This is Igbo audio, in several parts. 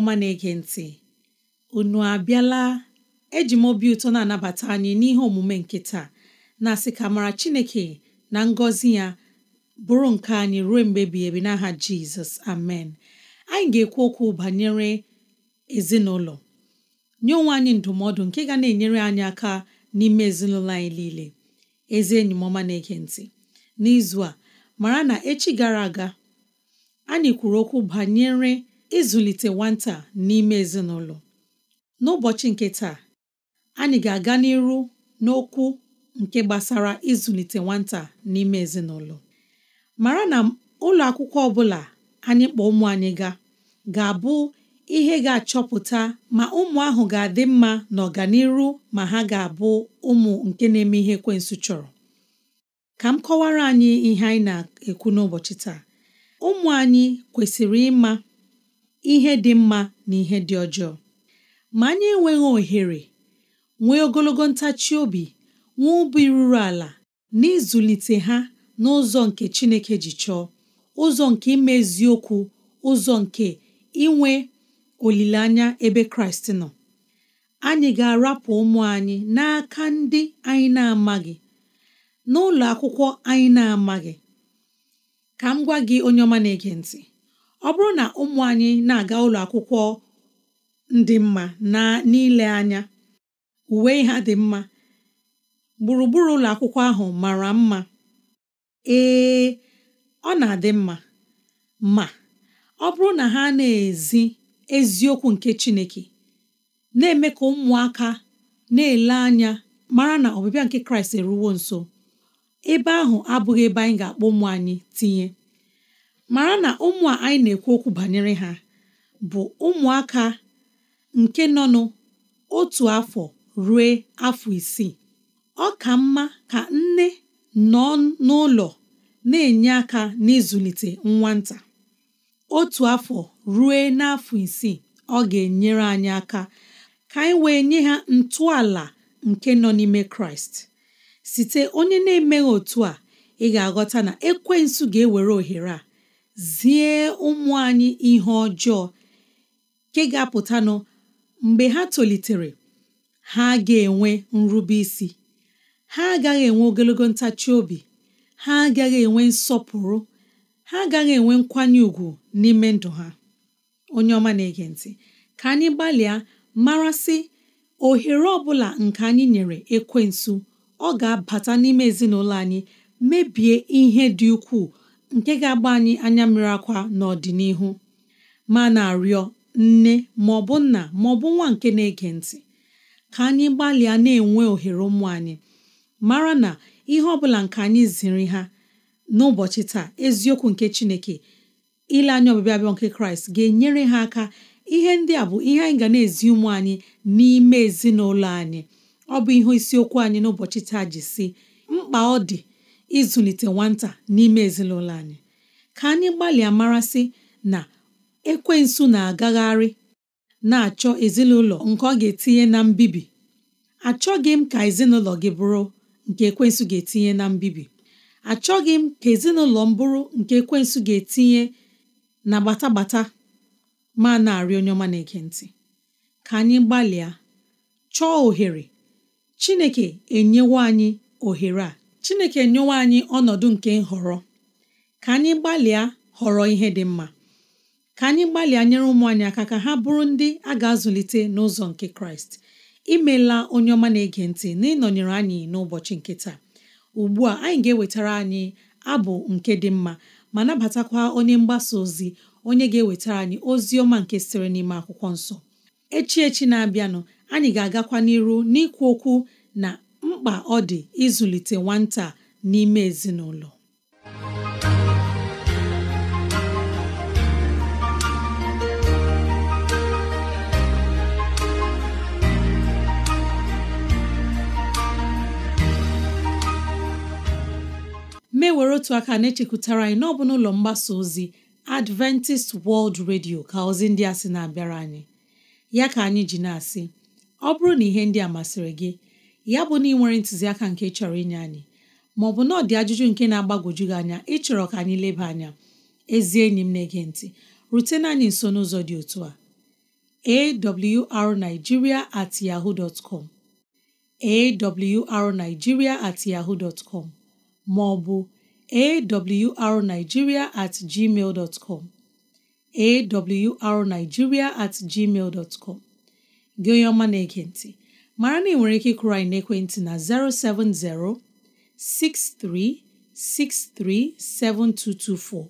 ọma na-ege ntị unu abịala eji m obi ụtọ na-anabata anyị n'ihe omume nke taa na-asị ka mara Chineke na ngọzi ya bụrụ nke anyị ruo mgbe bi ebi n'aha Jizọs amen anyị ga-ekwu okwu banyere ezinụlọ nye onwe anyị ndụmọdụ nke ga na-enyere anyị aka n'ime ezinụlọ anyị niile ezi enyi m ọma na-ege ntị n'izu a mara na echi gara aga anyị kwuru okwu banyere ịzụlite nwata n'ime ezinụlọ n'ụbọchị nke taa anyị ga-aga n'iru n'okwu nke gbasara ịzụlite nwata n'ime ezinụlọ mara na ụlọ akwụkwọ ọbụla anyị kpọọ ụmụ anyị ga ga-abụ ihe ga-achọpụta ma ụmụ ahụ ga-adị mma n'ọganiru ma ha ga-abụ ụmụ nke na-eme ihe kwensụ chọrọ ka m kọwara anyị ihe anyị na-ekwu n'ụbọchị taa ụmụ anyị kwesịrị ịma ihe dị mma na ihe dị ọjọọ ma anyị enweghị ohere nwee ogologo ntachi obi nwee ubi ruru ala na ịzụlite ha n'ụzọ nke Chineke ji chọọ ụzọ nke imeziokwu, ụzọ nke inwe olileanya ebe Kraịst nọ anyị ga-arapụ ụmụ anyị n'aka ndị anyị na-amaghị n'ụlọ akwụkwọ anyị na-amaghị ka m gwa gị onye ọma na-ege ntị ọ bụrụ na ụmụ anyị na-aga ụlọ akwụkwọ ndị mma n'ile anya uwe ha dị mma gburugburu ụlọ akwụkwọ ahụ mara mma ee ọ na-adị mma ma ọ bụrụ na ha na-ezi eziokwu nke Chineke na-eme ka ụmụaka na-ele anya mara na ọbịbịa nke Kraịst eruwo nso ebe ahụ abụghị ebe anyị ga-akpọ ụmụ anyị tinye mara na ụmụ a anyị na-ekwu okwu banyere ha bụ ụmụaka nke nọ n'otu afọ ruo afọ isii ọ ka mma ka nne nọ n'ụlọ na-enye aka n'ịzụlite nwata otu afọ ruo n'afọ isii ọ ga-enyere anyị aka ka anyị wee nye ha ntọala nke nọ n'ime kraịst site onye na-emeghị otu a ị ga-aghọta na ekwensu ga-ewere ohere a zie ụmụ anyị ihe ọjọọ nke ga-apụtanụ mgbe ha tolitere ha ga-enwe nrube isi ha agaghị enwe ogologo ntachi obi ha agaghị enwe nsọpụrụ ha agaghị enwe nkwanye ùgwù n'ime ndụ ha onye ọma na-ege ntị ka anyị gbalịa marasị ohere ọbụla bụla nke anyị nyere ekwensu ọ ga-abata n'ime ezinụlọ anyị mebie ihe dị ukwuu nke ga-agba anyị anya mmiri akwa n'ọdịnihu ma na-arịọ nne ma ọ bụ nna ma nwa nke na-ege ntị ka anyị gbalịa na-enwe ohere ụmụ anyị mara na ihe ọ bụla nke anyị ziri ha n'ụbọchị taa eziokwu nke Chineke ile anya ọbịbịa nke Kraịst ga-enyere ha aka ihe ndị a bụ ihe anyị ga na-ezi ụmụ anyị n'ime ezinụlọ anyị ọ bụ ihe isiokwu anyị n'ụbọchị taa ji si mkpa ọ dị ịzụlite nwata n'ime ezinụlọ anyị ka anyị gbalịa marasị na ekwensu na-agagharị na-achọ ezinụlọ nke ọ ga-etinye na mbibi achọghị m ka ezinụlọ gị bụrụ nke ekwensu ga-etinye na mbibi achọghị m ka ezinụlọ m bụrụ nke ekwensu ga-etinye na gbatagbata ma na-arị onye ọma na ka anyị gbalịa chọọ ohere Chineke enyewo anyị ohere a chineke nyewe anyị ọnọdụ nke nhọrọ ka anyị gbalịa họrọ ihe dị mma ka anyị gbalịa nyere ụmụ anyị aka ka ha bụrụ ndị a ga-azụlite n'ụzọ nke kraịst imela onye ọma na-ege ntị n'ịnọnyere anyị n'ụbọchị nke taa ugbu a anyị ga-ewetara anyị abụ nke dị mma ma nabatakwa onye mgbasa ozi onye ga-ewetara anyị ozi ọma nke sịrị n'ime akwụkwọ nsọ echi echi na-abịanụ anyị ga-agakwa n'iru n'ikwu okwu na mkpa ọ dị ịzụlite nwata n'ime ezinụlọ mewere otu aka na-echekwutara anyị n'ọbụ n'ụlọ mgbasa ozi Adventist World Radio ka ozi ndị a sị na-abịara anyị ya ka anyị ji na-asị ọ bụrụ na ihe ndị a masịrị gị ya bụ na ị ntụziaka nke chọrọ inye anyị maọbụ na ọ dị ajụjụ nke na-agbagwoju gị anya ịchọrọ ka anyị leba anya ezi enyi m na-ege ntị rutena anyị nso n'ụzọ dị otu a awrnigeria at yahoo dot com awrnigeria at yahoo dot maọbụ awrnigeria at gmail dot com at gmail dot com gị onye ọma na-ege ntị mara na ị nwere ike ịkụrụ anyị n'ekwentị na 070 7224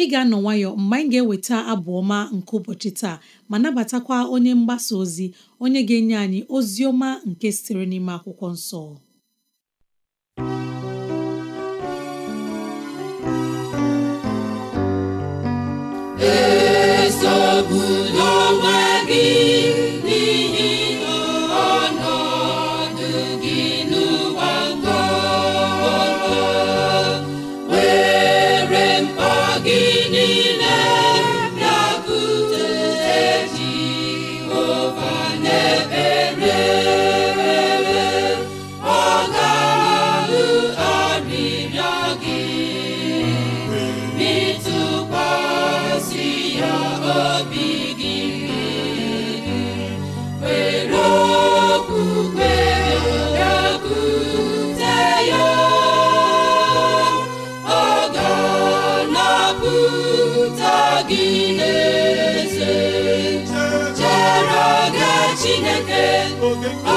ị ga-anọ nwayọ mgbe anyị ga-eweta abụ ọma nke ụbọchị taa ma nabatakwa onye mgbasa ozi onye ga-enye anyị ozi ọma nke sitere n'ime akwụkwọ nsọ esogbula onwe gị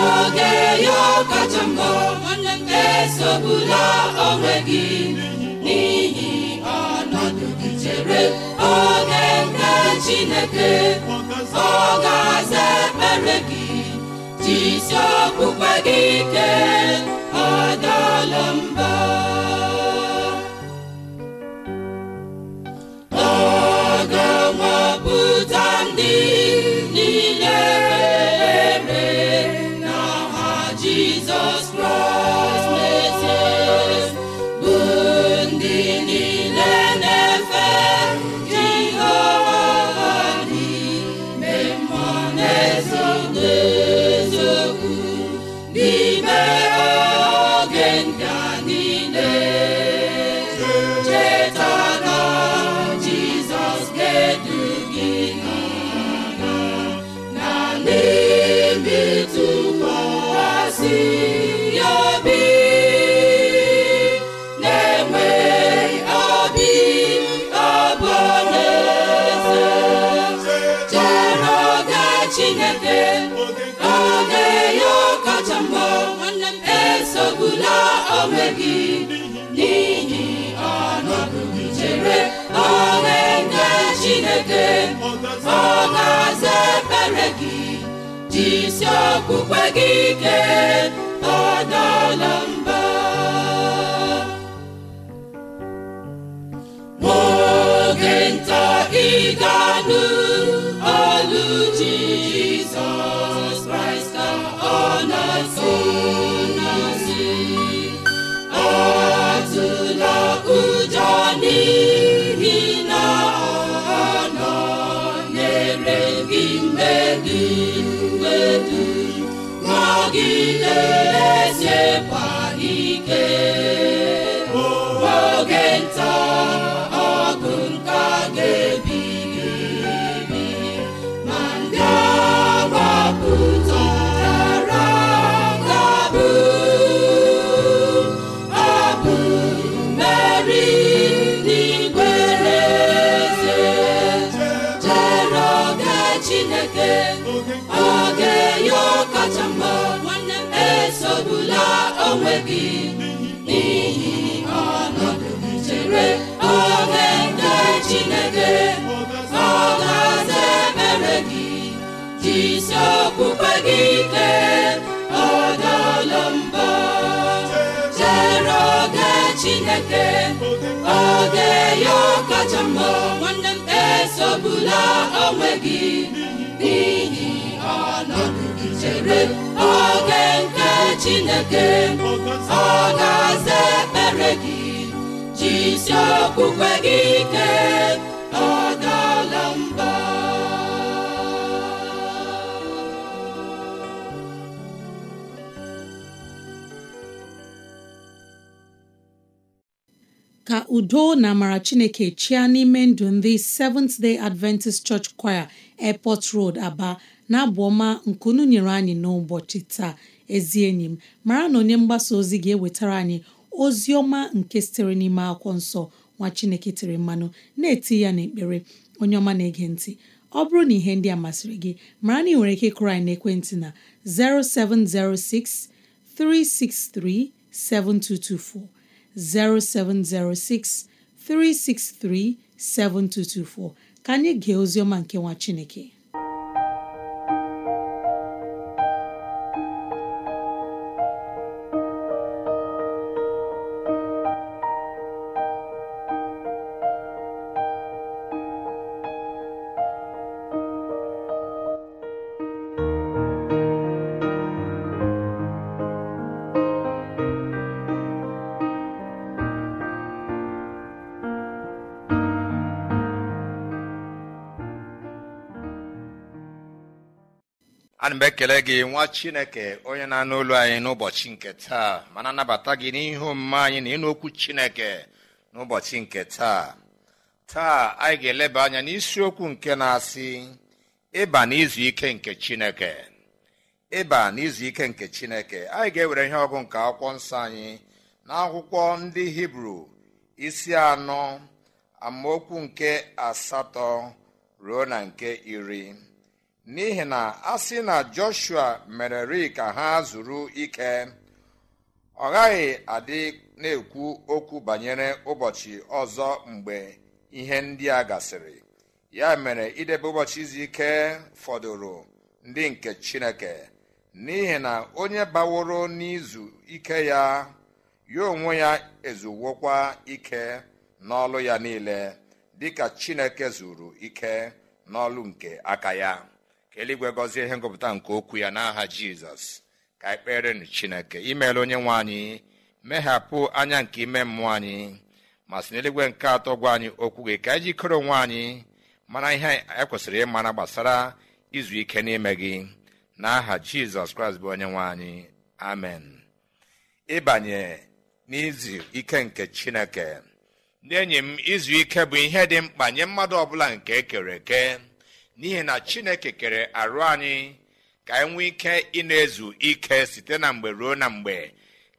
oge ya kacha mbọ esogbula onwe gị n'ihi ọnọdụ gị chere oge nke Chineke ọ ga-aza ekpere gị jisi okpukpe gị ike ọ ga-aza ebere gị jisi okpukpe gị ike adala mba n'oge nta ị ga-anụ ezeekwa ike isi gị ike chere oge Chineke oge kacha mma nwanne m esogbula onwe gị n'ihi ọnọdụ oge nke Chineke ọ ga-aza ekpere gị jisi okpukpe gị ike ka udo na amara chineke chịa n'ime ndụ ndị Seventh Day Adventist Church Choir Airport Road Aba na-abụ ọma nyere anyị n'ụbọchị taa ezi enyi m mara na onye mgbasa ozi ga-ewetara anyị ozi ọma nke sitere n'ime akwụkwọ nsọ nwa chineke tiri mmanụ na-eti ya n'ekpere onye ọma na-ege ntị ọ bụrụ na ihe ndị a masịrị gị mara na ị nwere ike ịkụrụ anyị n'ekwentị na 0706 363 7224 0706 363 7224 ka anyị gee oziọma nke nwa Chineke anyị mgbe ekele gị nwa chineke onye na-anụ olu anyị n'ụbọchị nke taa mana anabata gị n'ihu omume anyị na ịnụokwu okwu chineke n'ụbọchị nke taa taa anyị ga-eleba anya n'isiokwu nke na-asị ịba n'izu ike nke chineke ịba n'izu ike nke chineke anyị ga-ewere ihe ọgụ nke akwụkwọ nsọ anyị na ndị hibru isi anọ amaokwu nke asatọ ruo na nke iri n'ihi na a sị na joshua mereri ka ha zuru ike ọ gaghị adị na-ekwu okwu banyere ụbọchị ọzọ mgbe ihe ndị a gasịrị ya mere idebe ụbọchị izu ike fọdụrụ ndị nke chineke n'ihi na onye baworo n'izu ike ya ya onwe ya ezuwokwa ike n'ọlụ ya niile dịka chineke zuru ike n'ọlụ nke aka ya ka eluigwe gọzie ihe ngụpụta nke okwu ya n'aha jizọs ka anyị kperenụ chineke imeela onye nwe anyị meghapụ anya nke ime mmụọ anyị ma sị n'eluigwe nke atọ gwa anyị okwu gị ka anyị jikere onwe anyị mara ihe ekwesịrị ịmara gbasara izu ike n'ime gị aha jizọs kraịst bụ onye nwe anyị amen ịbanye n'izu ike nke chineke na enyi m izu ike bụ ihe dị mkpa nye mmadụ ọbụla nke ekere eke n'ihi na chineke kere arụ anyị ka anyị nwee ike ị na-ezu ike site na mgbe ruo na mgbe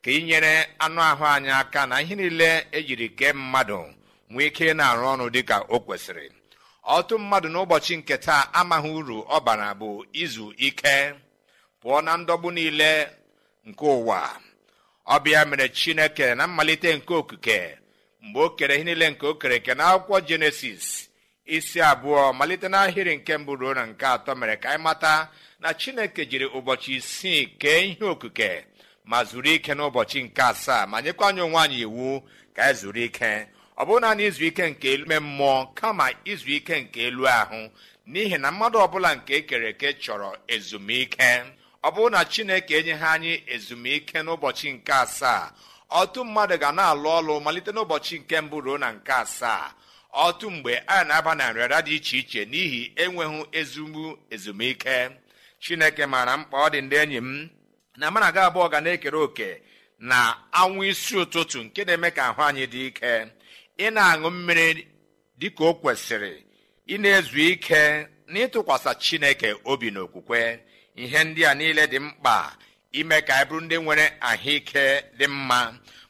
ka ịnyere anụ ahụ anyị aka na ihe niile ejiri kee mmadụ nwee ike ị na-arụ ọrụ dịka o kwesịrị ọtụ mmadụ n'ụbọchị nke taa amaghị uru ọbara bụ izu ike pụọ na ndọgbu niile nke ụwa ọbịa mere chineke na mmalite nke okike mgbe o kere ihe niile nke o kere na akwụkwọ jenesis isi abụọ malite n'ahịrị nke mbụ ruo na nke atọ mere ka anyị mata na chineke jiri ụbọchị isii kee ihe okike ma zuru ike n'ụbọchị nke asaa ma nyekwa anyị onwe anyị iwu ka anyị zuru ike ọ bụrụ naanị izu ike nke ime mmụọ kama izu ike nke elu ahụ n'ihi na mmadụ ọbụla nke ekere eke chọrọ ezumike ọ bụrụ na chineke enyeghị anyị ezumike n'ụbọchị nke asaa ọtụ mmadụ ga na-alụ ọlụ malite n'ụbọchị nke mbụ ruo na nke asaa otu mgbe a na-aba na nrịara dị iche iche n'ihi enweghị ezumbu ezumike chineke maara mkpa ọ dị ndị enyi m na mana aga abụọ ga na-ekere òkè na anwụ isi ụtụtụ nke na-eme ka ahụ anyị dị ike ị na-aṅụ mmiri ka o kwesịrị ị na-ezu ike na ịtụkwasị chineke obi na okwukwe ihe ndị a niile dị mkpa ime ka anyị bụrụ ndị nwere ahụike dị mma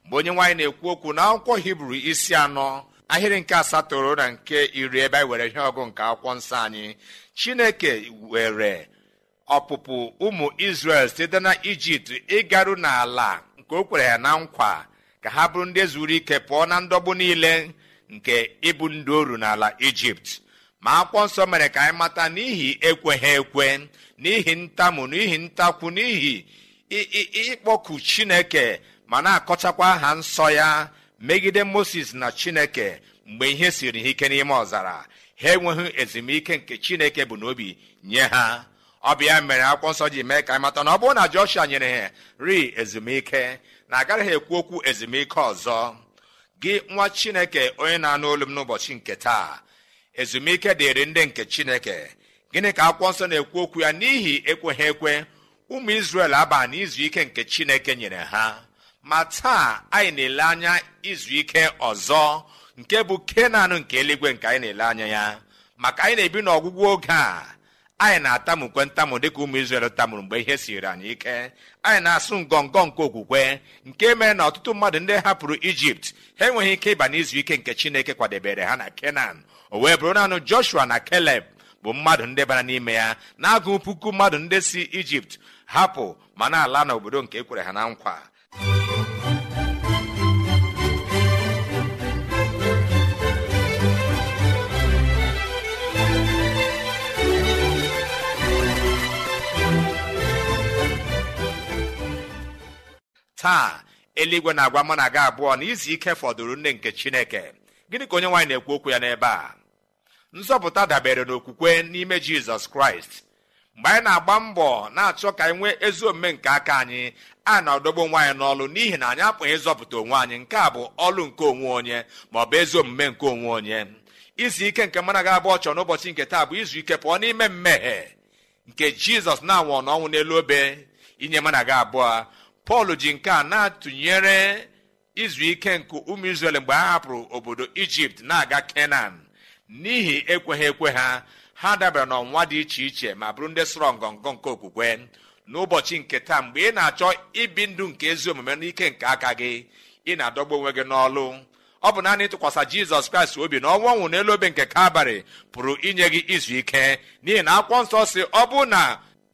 mgbe onye nwaanyị na-ekwu okwu na akwụkwọ hibru isi anọ ahịrị nke asatọ na nke iri ebe anyị were ihe ọgụ nke akwụkwọ nsọ anyị chineke were ọpụpụ ụmụ isrel site na ijipt ịgaru n'ala nke o kwere ya na nkwa ka ha bụrụ ndị zuru ike pụọ na ndọgbu niile nke ịbụ ndị oru n'ala ijipt ma akwụkwọ nsọ mere ka anyị mata n'ihi ekweghị ekwe n'ihi ntamu n'ihi ntakwu n'ihi ịkpọku chineke ma na-akọchakwa aha nsọ ya megide moses na chineke mgbe ihe siri ha ike n'ime ọzara ha enweghị ezumike nke chineke bụ n'obi nye ha ọ mere akwụkwọ nsọ ji mee ka anyị mata na ọ bụrụ na joshua nyere ha ri ezumike na agaghị ekwu okwu ezumike ọzọ gị nwa chineke onye na-anụ olu m n'ụbọchị nke taa ezumike dịrị ndị nke chineke gịnị ka akwụkwọ nsọ na-ekwu okwu ya n'ihi ekweghị ekwe ụmụ izrel aba n'izu ike nke chineke nyere ha ma taa anyị na-ele anya izu ike ọzọ nke bụ kenan nke eluigwe nke anyị na-ele anya ya maka anyị na-ebi n'ọgwụgwụ oge a anyị na-atamukwe ntamụ dịka ụmụ izrel tamuru mgbe ihe siri anyị ike anyị na-asụ ngọngọ nke okwukwe nke mere na ọtụtụ mmadụ ndị hapụrụ ijipt ha enweghị ike ịba n'izu ike nke chineke kwadebere ha na kenan o wee bụrụ naanị joshua na keleb bụ mmadụ ndị bara n'ime ya na-agụ puku mmadụ ndị si ijipt hapụ ma na-ala n'obodo nke ekwere ha na nkwa taa eluigwe na-agwa mụ na gị abụọ na izu ike fọdụrụ nne nke chineke gịnị ka onye nwaanyị na-ekwu okwu ya n'ebe a nzọpụta dabere n'okwukwe n'ime jizọs kraịst mgbe anyị na-agba mbọ na-achọ ka anyị nwee ezi omume nke aka anyị a na-adọgbu nwaanyị anyị n'ọlụ n'ihi na anyị apụghị ịzọpụta onwe anyị nke a bụ ọlụ nke onwe onye ma ọ bụ ezi omume nke onwe onye izu ike nke mana ga abụọ chọrọ n'ụbọchị nke taa bụ izu ike pụọ n'ime mmehie nke jizọs na-anwụ n'ọnwụ n'elu obe inye mana abụọ pọl ji nke a na-atụnyere izu ike nke ụmụ izrel mgbe ha hapụrụ obodo ijipt na-aga kenan n'ihi ekweghị ekwe ha ha dabara n'ọnwa dị iche iche ma bụrụ ndị sọrọ ngọngọ nke okwukwe n'ụbọchị nke taa mgbe ị na-achọ ibi ndụ nke ezi omume n'ike nke aka gị ị na-adọgbu onwe gị n'ọlụ ọ bụ naanị ịtụkwasị jizọs kraịst obi na ọnwa nwụ n'elu obe nke kabarị pụrụ inye gị izu ike n'ihi na akwụkwọ nsọ si ọ bụ na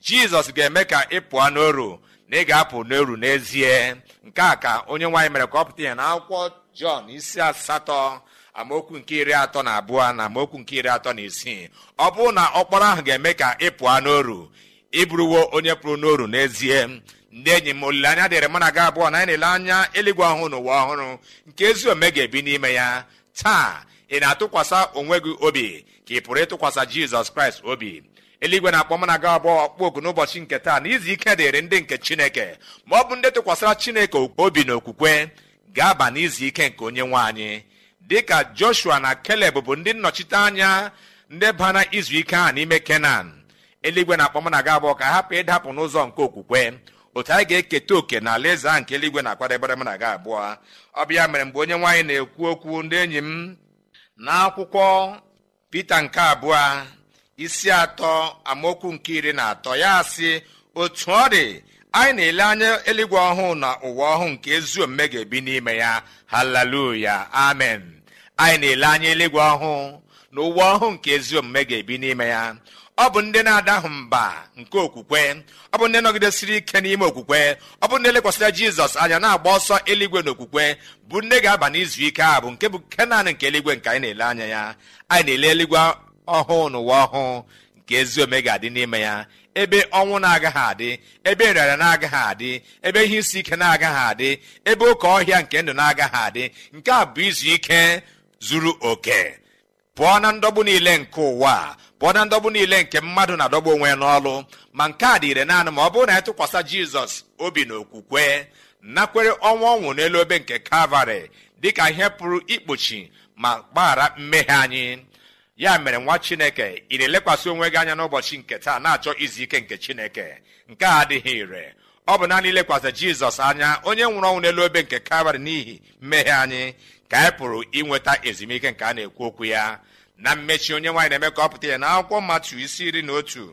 jizọs ga-eme ka ị pụọ n'oru na ị ga-apụ n'oru n'ezie nke a ka onye nwaanyị mere ka ọ pụta ya na akwụkwọ jọn isi asatọ amaokwu nke iri atọ na abụọ na amaokwu nke iri atọ na isii ọ bụrụ na ọkpọrọ ahụ ga-eme ka ị pụọ n'oru ịbụrụwo onye pụrụ n'oru n'ezie ndị enyi m olileanya dịrị mụ na gị abụọ na anyị na-ele anya eluigwe ọhụụ na ụwa ọhụrụ nke ezi ome ga-ebi n'ime ya taa ị na-atụkwasị onwe gị obi ka ị pụrụ ịtụkwasị jizọs kraịst obi eluigwe na-akpọ m na aga abụọ ọkpọ n'ụbọchị nke taa na izu ike dịrị ndị nke chineke ma ọ bụ ndị tụkwasịra chineke obi na okwukwe ga-aba n'izu ike nke onye nwe anyị dịka joshua na keleb bụ ndị nnọchite anya ndị bara izu ike ahụ n'ime kenan eluigwe na akpọm na aga abụọ ka hapụ ịdapụ n'ụzọ nke okwukwe otu anyị ga-eketa oke na alaeze ahụ nke eluigwe na-akwadebere m na aga abụọ ọ bịa mere mgbe onye nwaanyị na-ekwu okwu ndị enyi m n'akwụkwọ pete nke abụọ isi atọ amaokwu nke iri na atọ ya sị otu ọ dị anyị na-ele anya eluigwe ọhụụ na ụwa ọhụụ nke ezi omume ga-ebi n'ime ya haleluya amen anyị na-ele anya eluigwe ọhụụ na ụwa ọhụụ nke ezi omume ga-ebi n'ime ya ọ bụ ndị na-adahụ mba nke okwukwe ọ bụ ndị nọgidesiri ike n'ime okwukwe ọ bụ ndị lekwasịra jizọs anya na-agba ọsọ eluigwe okwukwe bụ ndị ga-aba n'izu ike a bụ nke bụ nke naanị nke eluigwe nke anyị na-ele anya ya anyị na-ele eluigwe ọhụụ n'ụwa ọhụụ nke ezi ome ga-adị n'ime ya ebe ọnwụ na-agaghị adị ebe nrịara na-agaghị adị ebe ihe isi ike na-agaghị adị ebe oke ọhịa nke ndụ na-agaghị adị nke a bụ izu ike zuru oke pụọ na ndọgbu niile nke ụwa pụọ na ndọgbu niile nke mmadụ na-adọgbu onwe ya n'ọlụ ma nke a dị ire naanị ma ọ bụrụ na ya tụkwasị jizọs obi na okwukwe nakwere ọnwa ọnwụ n'elu obe nke kalvarị dịka ihe pụrụ ikpuchi ma gbaghara mmehie anyị ya mere nwa chineke ị na-elekwasị onwe gị anya n'ụbọchị nke taa na-achọ izu ike nke chineke nke a adịghị ire ọ bụ naanị ilekwasị jizọs anya onye nwụrụ ọnwụ n'elu obe nke kalvarị n'ihi mmehie anyị ka anyị pụrụ inweta ezumike nke a na-ekwu okwu ya na mmechi onye nwaanyị na-eme ka ọ pụta ya na akwụkwọ mmatụ isi iri na otu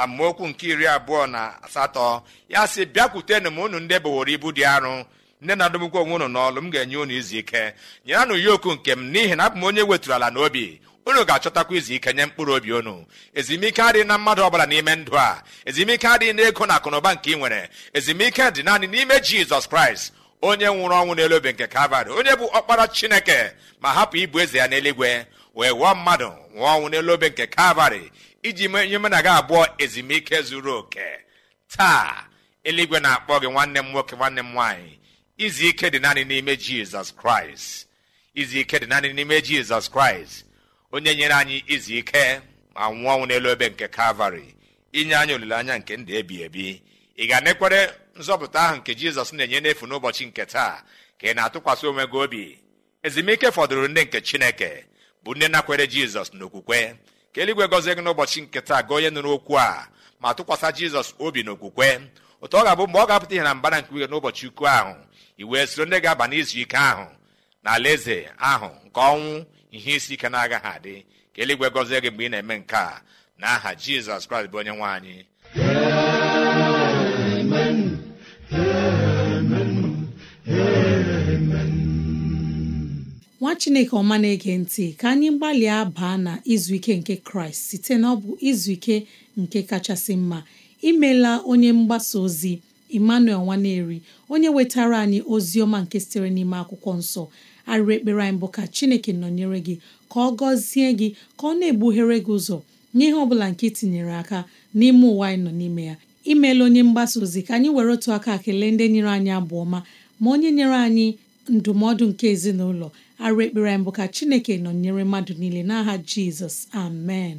amaokwu nke iri abụọ na asatọ ya sị bịakwutenụ m unu ndị boworo ibu dị arụ nne na adọgbukwa onwe unu n'ọlụ m ga-enye unu izu ike nyeranụ yoku nke m n'ihi na abụ m onye wetụrụ ala n'obi unu ga-achọtakwa izu ike nye mkpụrụ obi unu ezumike adịghị na mmadụ ọbụla n'ime ndụ a ezumike adịghị na ego na akụnụba nke ị nwere ezumike dị naanị n'ime jizọs kraịst onye nwụrụ ọnwụ n'elu obe nke kalvarị onye bụ ọkpara chineke ma hapụ ibu eze ya n'eluigwe wee wụọ mmadụ nwụọ ọnwụ n'elu obe nke kalvarị iji menye mụ na gị abụọ ezumike zuru oke taa eluigwe na-akpọ gị nwanne m nwoke nwanne m nwaanyị izu ike dị naanị n'ime jizọs kraịst izu ike dị naanị n'ime jizọs kraịst onye nyere anyị izu ike ma nwụọ ọnwụ n'elu ebe nke kalvarị inye anyị olileanya nke ndụ ebi ebi ị ga-anekwere nzọpụta ahụ nke jizọs na-enye n'efu n'ụbọchị nke taa ka ị na-atụkwasị onwe gị obi ezumike fọdụrụ ndị nke chineke bụ ndị nakwere jizọs n'okwukwe ka eluigwe gọzie gị n'ụbọchị nke taa gị onye nụrụ okwu a ma tụkwasị jizọs obi n'okwukwe ụtọ ọ ga-abụ mgbe ọ ga-apụta ihe na mbara nke uhe n'ụbọchị ukwu ahụ i wee soro ndị ga-aba n'izu ike ahụ na alaeze ahụ nke ọnwụ ihe isi ike na-agaghị adị ka eluigwe gọzie gị mgbe ị na-eme nke a na aha jizọs kraịst bụ onye nwe anyị nwa chineke ọma na-ege ntị ka anyị gbalịa baa na izu ike nke kraịst site na ọ bụ izu ike nke kachasị mma imela onye mgbasa ozi emmanuel nwaneri onye wetara anyị ozi ọma nke sitere n'ime akwụkwọ nsọ arịrị ekpere anyị bụ ka chineke nọnyere gị ka ọ gọzie gị ka ọ na-egbughere gị ụzọ n'ihe ọ bụla nke tinyere aka n'ime ụwa anyị nọ n'ime ya imeela onye mgbasa ozi ka anyị were otu aka kelee ndị nyere anyị abụọma ọma ma onye nyere anyị ndụmọdụ nke ezinụlọ arịrị ekpere bụ ka chineke nọnyere mmadụ niile n'aha jizọs amen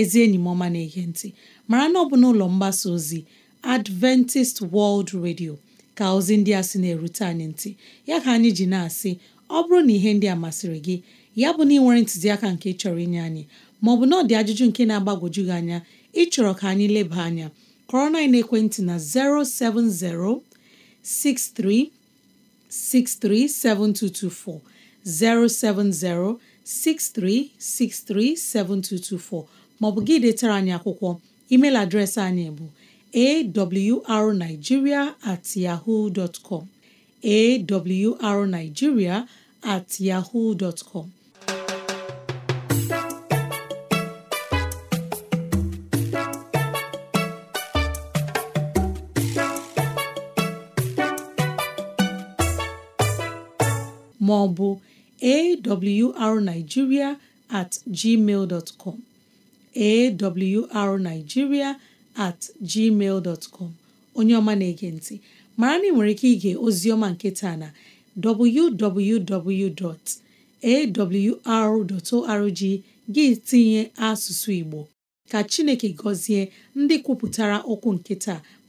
ezi enyi m ọma na-ege ntị mara na ọ bụ na ụlọ mgbasa ozi Adventist World Radio ka ozi ndị a sị na-erute anyị ntị ya ka anyị ji na-asị ọ bụrụ na ihe ndị a masịrị gị ya bụ na ị nwere ntụziaka nke chọrọ inye anyị maọbụ na ọ dị ajụjụ nke na-agbagwoju gị anya ịchọrọ ka anyị leba anya kọrọ na ekwentị na 070 63 maọbụ gị detara anyị akwụkwọ email adreesị anyị bụ awrnigeria at maọbụ awrnigeria at gmail arnigiria at gmail dot com onye ọma na-ege ntị mara na ị nwere ike ige oziọma nke taa na www.awr.org gị tinye asụsụ Igbo ka Chineke gọzie ndị kwupụtara okwu nke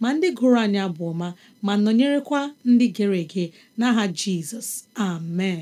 ma ndị gụrụ anya bụ ọma ma nọnyerekwa ndị gere ege n'aha Jizọs amen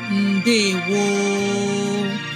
woo!